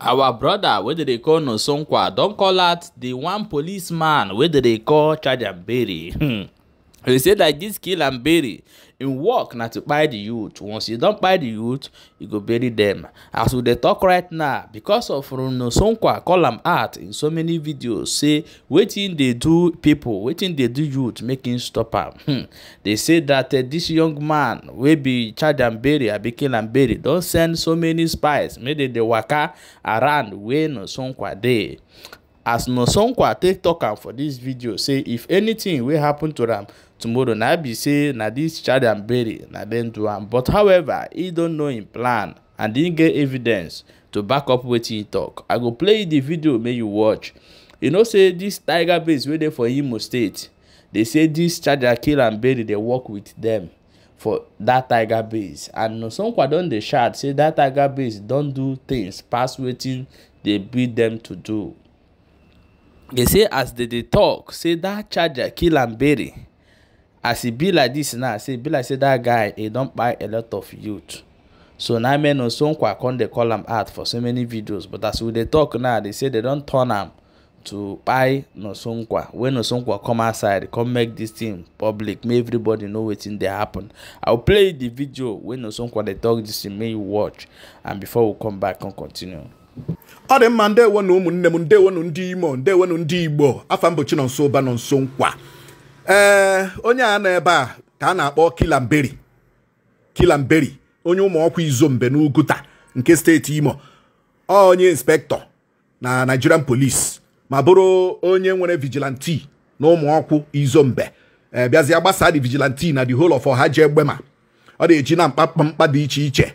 our broda wey dey call nosonkwa don call out di one policeman wey dey call chajambere He said that this kill and bury im work na to kpai the youth once you don kpai the youth you go bury them. as we dey talk right now because of runo sonkwa call am out in so many videos say wetin dey do people wetin dey do youth make im stop am hmm. dey say dat uh, eh, dis young man wey be charge and bury abi kill and bury don send so many spies make dem dey waka around wey no sonkwa dey as nosogba take tok am for dis video say if anything wey happen to am tomorrow na be say na dis child and bury na dem do am but however e don know im plan and e get evidence to back up wetin e talk. i go play di video make you watch you know say dis tiger base wey dey for imo state dey say dis charger kill and bury dey work wit dem for dat tiger base and nosogba don dey shout say dat tiger base don do tins pass wetin dey bid dem to do dey say as dey dey tok say dat charger kill am bury. as e be like dis now say e be like say dat guy e don kpai a lot of youth so na men o sonkwa come dey call am out for so many videos but as we dey talk now dey say dey don turn am to kpai nosonkwa wey nosonkwa come outside come make dis thing public make everybody know wetin dey happen i will play the video wey nosonkwa dey talk dis thing make you watch and before we come back come continue. ọ dị mma ndewo na ụmụnne m ndewonu ndị imo ndewonu ndị igbo afa mbochi nọ nso ụba nọ nso nkwa ee onye a nọ ebe a ka a na-akpọ kilamberi kilamberi onye ụmụọkwa izombe n'uguta nke steeti imo onye inspektọ na nigerian police ma bụrụ onye nwere vigilante na ụmụọkwụ izombe ee bịazịa gbasaa dị vigilanti na the whole of ọha ji egbe ọ na-eji na mkpamkpa dị iche iche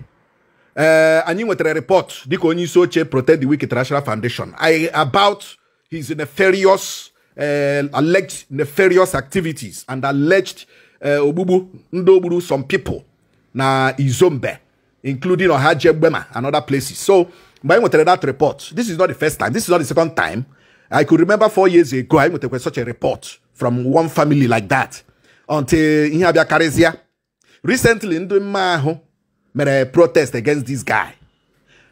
Eh, anyị nwetara report dịka onye isi oche protect the Wicked international foundation about his nefarious eh, alleged nefarious activities and alleged eh, ogbugbu ndị ogburu some people na izombe including ohajegbema and other places so mgbe anyị nwetara that report this is not the first time this is not the second time i could remember four years ago anyị nwetakwa such a report from one family like that until ihe abịa karịzịa recently ndị mma ahụ mere protest against this guy.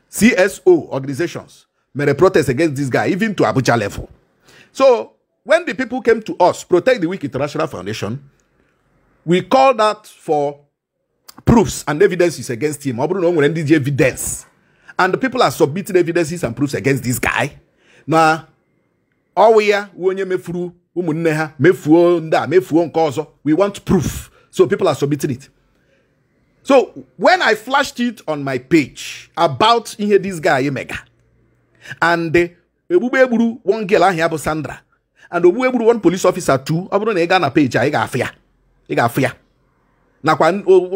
CSO organizations mere protest against this guy, even to Abuja level. So when the people came to us, Protect the Weak International Foundation, we called out for proofs and evidences against him. evidence. And the people are submitting evidences and proofs against this guy. Now, ọwụ ya onye mefuru ụmụnne ha mefuo ndị a mefuo nke ọzọ we want proof so people are submitting it So when I flashed it on my page about ihe this guy Emega and Ebube one girl ahụ ya bụ Sandra and Obube gburu one police officer too ọ bụrụ na ị gaa na page a ị ga-afụ ya ị ga nakwa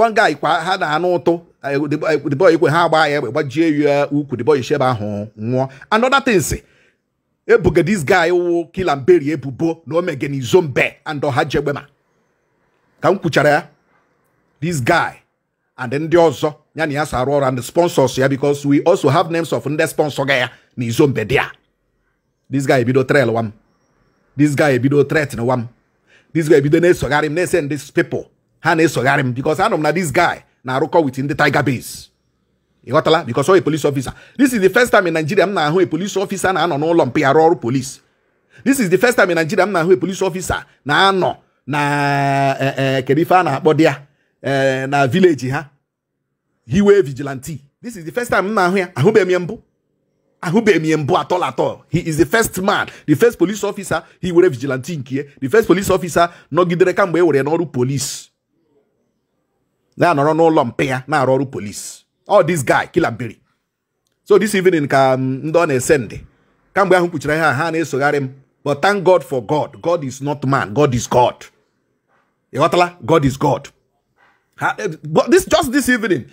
one guy kwa ha na anụ ụtụ eh, the boy ikwe ha agba ya egbe gbajie ya ukwu the boy shebe ahụ nwụọ another things ebuga this guy wụ Kilamberi ebubo na omegenizo mbe and ọha jegbema ka m kwuchara ya this guy and then ọzọ ya na as si and the sponsors ya because we also have names of ndị sponsor ga ni na izo this guy ebido trail wa m this guy ebido threat wa m this guy ebido na-esogharị m na-ese This people ha na-esogharị m because anọ m na this guy na-arụkọ with the tiger base You got la? because a police officer this is the first time in Nigeria m na-ahụ a police officer na-anọ n'ụlọ mpi arụ police this is the first time in Nigeria m na-ahụ a police officer na-anọ na kedu ife a na-akpọ Eh, na village ha hiwe vigilante this is the first time I na-ahụ ya ahụbeghị m ya mbụ ahụbeghị m ya he is the first man the first police officer he were vigilante nke the first police officer nọgidere kamgbe e were n'ọrụ police na-anọrọ no mpe ya na-arụ police all oh, this guy kilabiri so this evening ka mm, ndị ọ na-ese ndị kamgbe ahụ kwuchiri ha ha na-esogharị but thank god for god god is not man god is god ị god is god Eh, but this just this evening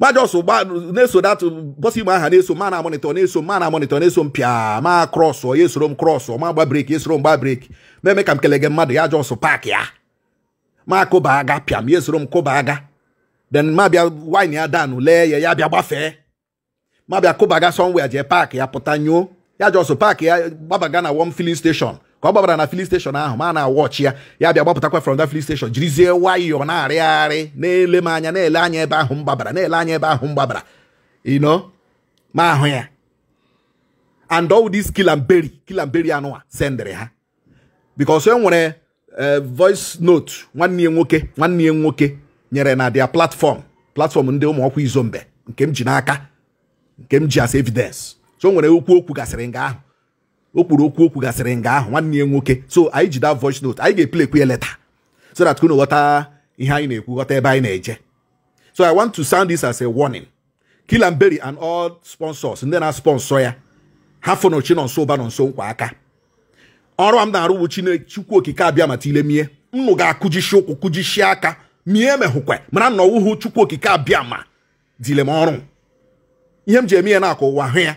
gbajọso gba na-eso dat bọsi man aha na-eso ma na monitor na-eso ma na monitor na-eso m pịa ma or oh, yes esoro cross or oh, ma gba breki esoro m gba breki meme ka m kelege mmadụ ya jọsụ park ya ma kụba aga pia m ya esoro m kụba aga then ma bịa wine ya danụ lee ya ya bịa gbafee ma bịa kụba aga somewhere jee park ya potanyo nyoo ya jọsụ park ya gbabaga na wọm filling station ka ọ gbabara na fili steshọn ahụ ma na-awọ ya ya bịa gbapụtakwa from that filin steshọn jirizie nwayọọ na-arịgharị na-ele m anya na-ele anya ebe ahụ mgbabara na-ele anya ebe ahụ m gbabara ino ma ahụ ya and all this kilamberi kilamberi anụwa sendịrị ha because e nwere e, voice note nwanne ya nwoke nwanne ya nwoke nyere na dia platform platform ndị ụmụ izombe nke m ji n'aka nke m ji as evidence so nwere okwu okwu gasịrị nga ahụ o kwuru okwu okwu gasịrị nga ahụ nwanne ya nwoke so anyị ji da voice note anyị ga-epl ekwe leta so that unu ghọta ihe anyị na-ekwu ghọta ebe anyị na-eje so i want to sound this as a warning Kilamberry and all sponsors ndị na-sponsọ ya ha fụnụ nọ nso ụba nọ nso nkwa aka ọrụ m na-arụ bụ Chukwu Okike abịa mata ile mie nnụ ga-akụjishi ụkwụ kụjishi aka mie mehụkwe mana nna ọwụhụ Chukwu Okike abịa ma dile m ọrụ ihe m ji eme ya na-akọ ụwa hụ ya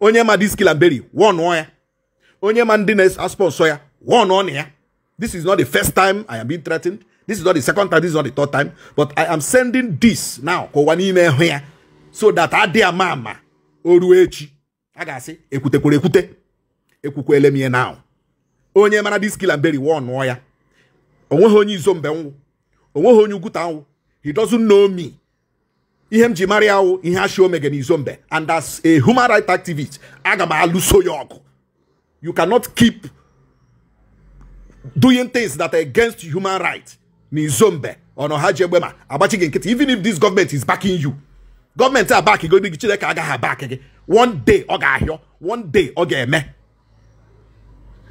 onye ma diskilaberi wọnụọ ya onye ma ndị na-asọ nsọ ya wọnụọ na ya this is not the first time i am being threatened this is not the second time this is not the third time but i am sending this now ka ụwa n'ime hụ ya so that adị ama ama o ruo echi a ga-asị ekwutekwara ekwute ekwukwele m ihe na onye mara diskilaberi wọnụọ ya onweghị onye izo mbe nwụ onweghị onye ugwuta nwụ he doesn't know me ihe m ji mara ya wụ ihe ashi omege n'izo mbe and as a human right activist aga m alụso ya ọgụ you cannot keep doing things that are against human rights n'izo mbe ọnọ ha ji egbe ma agbachi gị nkịtị even if this government is backing you gọọmenti a bak gị gị chineke agaghị abak gị one day ọ ga-ahịọ one day ọ ga-eme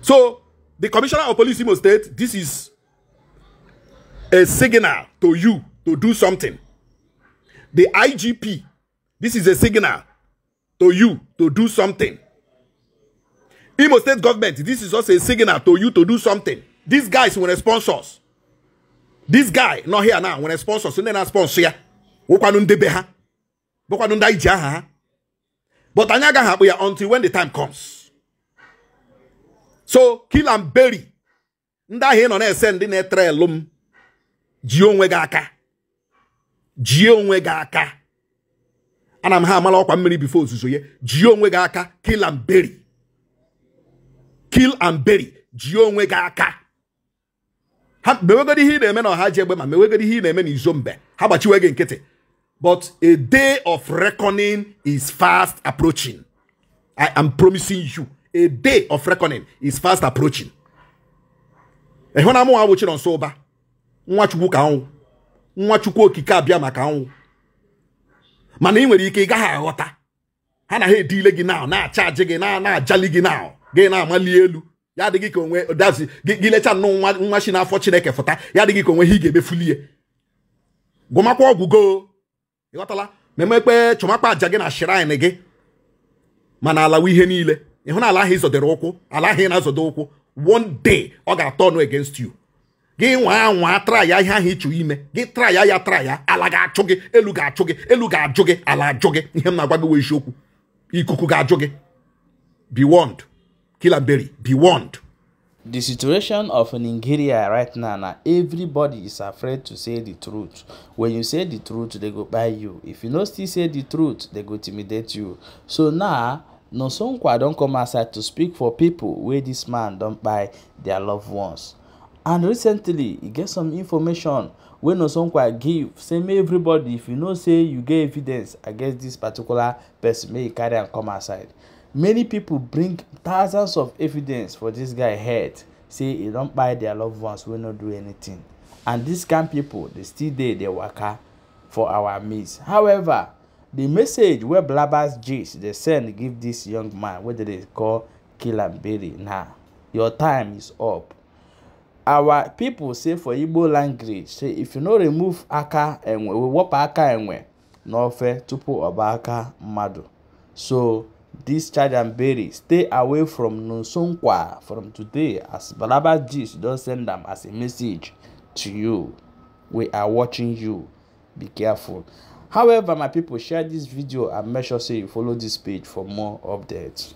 so the commissioner of police Imo State this is a signal to you to do something the IGP, this is a signal to you to do something. Imo state government, this is also a signal to you to do something. These guys will sponsor us. This guy, not here now, when sponsor, so then sponsor ya. But anyaga happen until when the time comes. So kill and bury. Nda he no send na trelum. Ji onwe ga jie onwe gị aka ana m ha amala ọkwa mmiri bifo ozuzo ya jie onwe gị aka kill and bury kill and bury jie onwe gị aka ha mewegodi ihe ị na-eme na ọha ji egbe ma mewegodi ihe ị na-eme na izo mbe ha gbachiwe gị nkịtị but a day of reckoning is fast approaching i am promising you a day of reckoning is fast approaching ịhụ na mụnwa bụ Chinonso Ụba nwa Chukwu ka anwụ nwa chukwu okike abịa maka anwụ mana ị nwere ike ị gaghị aghọta ha na ha edile gị na na-achaji gị na na-ajali gị na gị na-amali elu ya adịghị ka onwe dazi gị lecha nnọọ nwa shi n'afọ chineke fụta ya adịghị ka onwe ha ị ga-emefulie gwụmakwa ọgwụgo ịghọtala memekpe chọmakpa aja gị na shrine gị mana alawa ihe niile ịhụ na ala ahụ ịzọdere ụkwụ ala ahụ ị na-azọdo ụkwụ one day ọ ga-atọ ọnụ against you gị nwa traya ihe ahụ ịchụ ime gị traya ya traya ala ga-achụ gị elu ga-achụ gị elu ga-ajụ gị ala ajụ gị ihe m na-agwa gị wee isiokwu ikuku ga-ajụ gị be warned kilaberi be warned The situation of Nigeria right now, now, everybody is afraid to say the truth. When you say the truth, they go buy you. If you no still say the truth, they go intimidate you. So now, Nosonkwa don come outside to speak for people where this man don buy their loved ones and recently e get some information wey nosonkwa give say make everybody if you know say you get evidence against this particular person make you carry am come outside many people bring thousands of evidence for this guy head say e don kpai their loved ones wey no do anything and dis kind people dey still dey dey waka for our midst however the message wey blabber's gist dey send give this young man wey dey dey call kill am berry na your time is up our people say for igbo language say if you no remove aka enwe wepụ aka enwe n'ofe tupu ọba aka mmadụ so this charge and bury stay away from nsonkwa from today as balaba gist don send am as a message to you we are watching you be careful however my people share this video and make sure say you follow this page for more updates